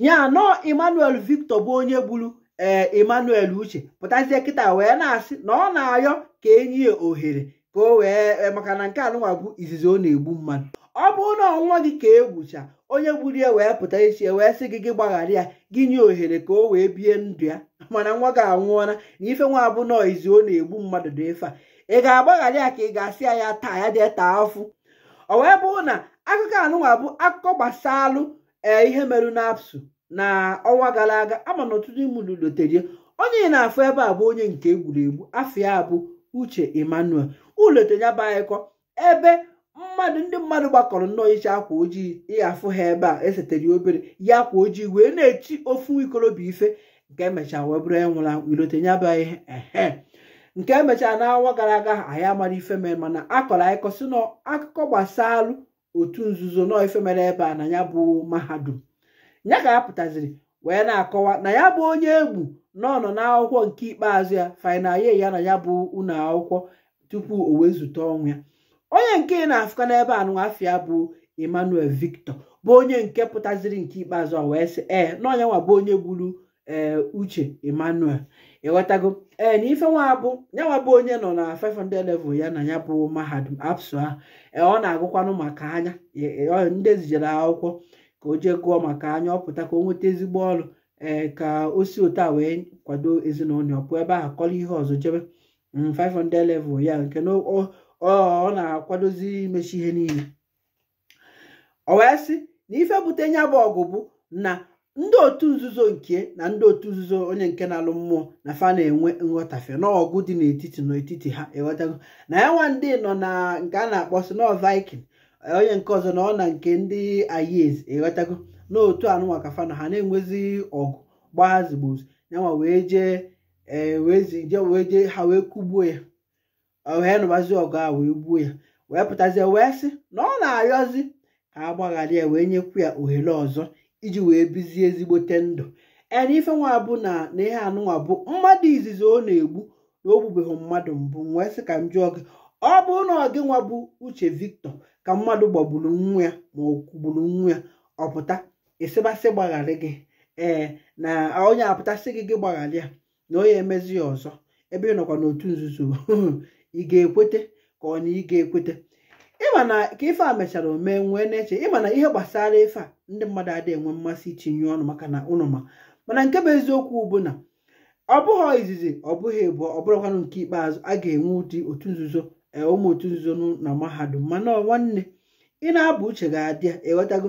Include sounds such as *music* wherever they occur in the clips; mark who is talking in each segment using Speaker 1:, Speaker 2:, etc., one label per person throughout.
Speaker 1: ya nọ emmanuel victor bụ onye gburu ee eh, emmanuel uche pụtazie kịta wee na-asị na ọ na-ayọ ka enyi ya ohere ka o wee eh, maka na nke anụnwa bụ izizi ọ na-egbu mmadụ ọ bụrụ na ọnwa gị ka egbucha onye gburu ya wee pụta echi wee sị gị gị gbaghara ya gị nye ohere ka o wee bie ndụ ya *laughs* mana nwa gị anwụọla na ife nwa bụ nọ izi ọ na-egbu mmadụ dị efe a ị ga-agbaghara ya ka ị ga-asị ya ya taa ya dị taa afụ o wee bụrụ na akụkọ anụnwa bụ akụkọ gbasaalụ ee ihe merụ n'apsu na ọnwa gara aga ama na ọtụtụ imụlụ loterie onye na-afụ ebe a bụ onye nke egwuregwu ya bụ uche emmanuel ulotenya anyịkọ ebe mmadụ ndị mmadụ gbakọrọ nnọọ iche akwa ojii ịghafụ ha ebe a esetere obere ya akwa ojii wee na-echi ofu ikorobịa ife nke emechaa wee bụrụ enwụrụ ilotenya ihe ehe nke emechaa n'awa gara aga anyị amara ife mere mana akọrọ anyị kọsị na akụkọ gbasaa alụ. otu nzuzo nọ ife mere ebe a na ya bụ mahadum ya ka ya pụtaziri wee na-akọwa na ya bụ onye egwu nọ nọ n'akwụkwọ nke ikpeazụ ya final ye ya na ya bụ ụlọ akwụkwọ tupu o wee zute ọnwụ ya onye nke na-afụka n'ebe a ya bụ Emmanuel Victor bụ onye nke pụtaziri nke ikpeazụ a wee sị ee na onye nwa bụ onye gburu ee eh, uche emmanuel ịghọtago ee eh, na ife nwa bụ onye nọ na 500 level ya na ya bụ mahadum apsu ahụ ee eh, ọ na-agụkwanụ maka anya ndị ezijere akwụkwọ ka o jee gụọ maka anya ọ pụta ka o nweta ezigbo ọrụ ee ka o si otu a wee kwado ezinụlọ pụọ ebe a kọrọ ihe ọzọ jebe 500 mm, level ya nke na ọ na-akwadozi imechi ihe niile o wee sị n'ife bute ya bụ ọgụ bụ na ndị otu nzuzo nke na ndị otu nzuzo onye nke na-alụ mmụọ na fa na-enwe nghọtafe n'ọgụ dị n'etiti n'etiti ha ịghọtago e na ya nwa ndị nọ na nke a na-akpọ si nọ viking e, onye nke ọzọ na ọ na nke ndị ayez ịghọtago e n'otu anụnwa ka fa na ha na-enwezi ọgụ gbazigbozu yanwa wee jee wee jee ha wee kugbuo ya wee nụbazi ọgụ a wee gbuo ya wee pụtazie wee sị na ọ na-arịọzi ka a gbaghara ya wee nyekwu ya ohere ọzọ iji wee bizie ezigbote ndụ ena ife nwa bụ na na ihe anụnwa bụ mmadụ izizi ọ na-egbu na o gbubeghị mmadụ mbụ wee sị ka m jụọ gị ọ bụrụ na ọ gị nwa bụ uche victor ka mmadụ gbagburu nwa ya ma ọ kwugburu nwa ya ọpụta ịsịbasị gbagharị gị ee na onye apụtasị gị gị gbagharị ya na onye emezi ya ọzọ ebe ị nọkwa n'otu nzuzo *laughs* ị ga-ekwete ka ọ na ị ga-ekwete ịma na ka ife a mechara omee nwee na-eche ịmana na ihe gbasara ife a ndị mmadụ adịghị enwe mmasị itinye ọnụ maka na ụnụ ma mana nke bụ eziokwu bụ na ọ bụghị izizi ọ bụghị ịbụọ ọ bụrụkwanụ nke ikpeazụ a ga-enwe ụdị otu nzuzo e, ụmụ otu nzuzo na mahadum mana nwanne ị na-abụ uche ga-adị ịghọtago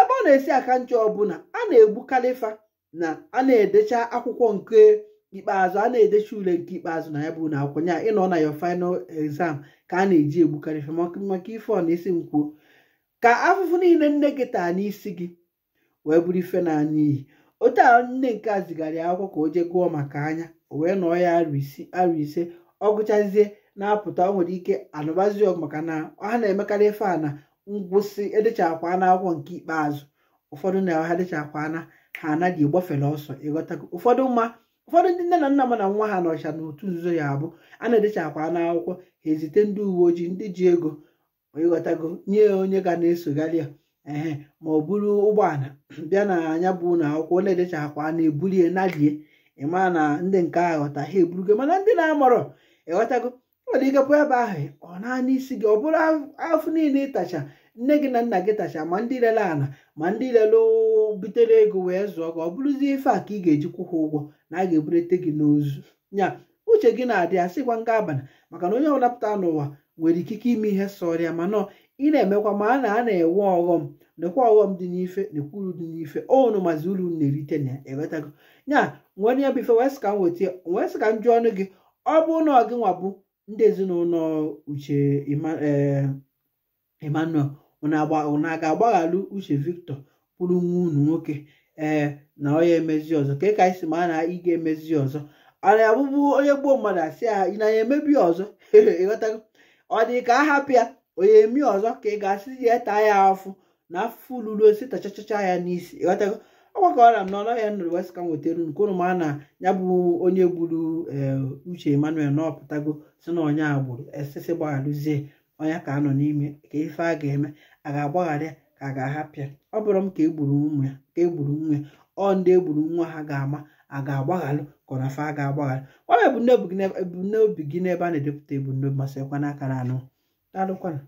Speaker 1: ebe ọ na-esi aka ncha ọbụla a na-egbu kalifa na a na-edecha akwụkwọ nke ikpeazụ a na-edecha ule nke ikpeazụ na ya bụ na akwụkwọ ya ịnọ na ya final exam ka a na-eji egbu kalifa maka ife ọ na-esi m ka afụfụ niile nne gị taa n'isi gị wee bụrụ ife na anya iyi otu a nne nke a zigara ya akwụkwọ ka o jee gụọ maka anya o wee nọọ ya arụ ise ọ gụchazie na-apụta o nwere ike anụbazi ọgụ maka na ha na-emekarị ife a na ngwụsị edechakwa na akwụkwọ nke ikpeazụ ụfọdụ na ha dịchakwa na ha anaghị egbafere ọsọ ịghọtago ụfọdụ mma ụfọdụ ndị nne na nna m na nwa ha nọcha n'otu nzuzo ya abụ a na-edechakwa na akwụkwọ ha ezite ndị uwe ojii ndị ji ego ịghọtago nye onye ga na-esogharị ya ehe ma ọ bụrụ ụgbọala *clears throat* bịa na anya bụ na akwụkwọ edecha edechakwa na-ebulie nalie ịma na ndị nke a ghọta ha eburugo mana ndị na-amọrọ ịghọtago nwere ike pụọ ebe ahụ ọ naanị isi gị ọ bụrụ afọ niile ịtacha nne gị na nna gị tacha ma ndị lele ala ma ndị lele butere ego wee zụọ gị ọ bụrụzie ife a ka ị ga eji ha ụgwọ na a ga-eburete gị n'ozu nya uche gị na-adị sịkwa nga abalị maka na onye ọbụla pụta n'ụwa nwere ikike ime ihe sọrọ ya mana ị na-emekwa ma a na a na-enwe ọghọm nekwa ọghọm dị n'ife uru dị n'ife onu mazi uru na-erite na enwetago ya nwere ya bụ ife wee sị ka m wee sị ka m ọnụ gị ọ bụ na ọ gị nwa bụ ndị ezinụlọ uche e, emmanuel unu ga agbaghalụ uche victor bụrụ nwa unu nwoke ee na onye emezi ọzọ ka ka anyị si ma na ị ga-emezi ọzọ a na-abụbụ onye gbuo mmadụ asị ya ị na ya emebi ọzọ ịghọtago *laughs* ọ dị ka a ya onye emi ọzọ ka ị ga-asị ya taa ya afụ na afụfụ luru osi tachachacha ya n'isi ịghọtago ọgbakọra m na ọlọ ya nụrụ west kam wetara unu ma na ya bụ onye gburu eh, uche emmanuel na si na onye agbụrụ esisi gbaghalụzie onye ka anọ n'ime ka ife a ga-eme a ga-agbaghara ya ka a ga-ahapụ ya ọ bụrụ m ka egburu nwa ya ka egburu nwa ya ọ ndị egburu nwa ha ga-ama a ga-agbaghalụ kọnafa a ga-agbaghalụ ebumnobi gị n'ebe a na-edepụta ebumnobi ma sịkwa aka na anụ daalụkwanụ